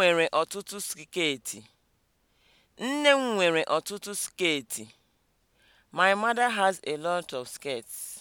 nwere ọtụtụ sketi. Nne m nwere ọtụtụ sketi. My mother has a lot of skirts.